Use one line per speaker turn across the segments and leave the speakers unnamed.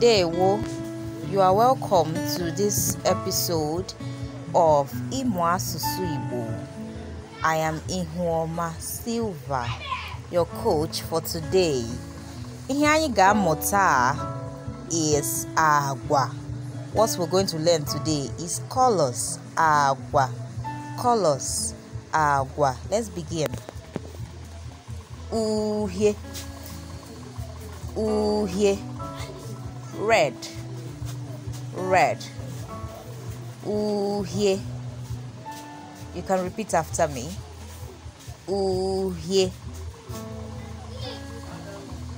Ndewo, you are welcome to this episode of Imo Asusu Igbo. I am Ihuoma Silva, your coach for today. Ihe Mota is agwa. What we're going to learn today is colors agwa. Colors agwa. Let's begin. Uhie. Uhie red red ooh yeah you can repeat after me ooh yeah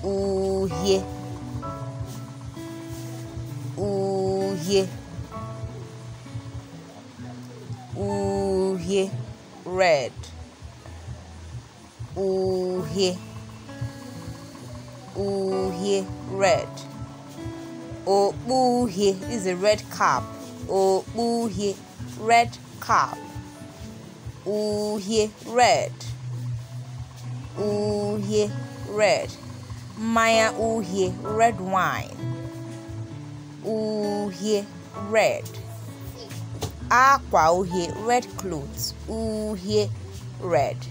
ooh yeah ooh yeah ooh yeah red ooh yeah ooh yeah red he is a red cap he red cap he red he red ooh, he red wine he red ooh, he red clothes he red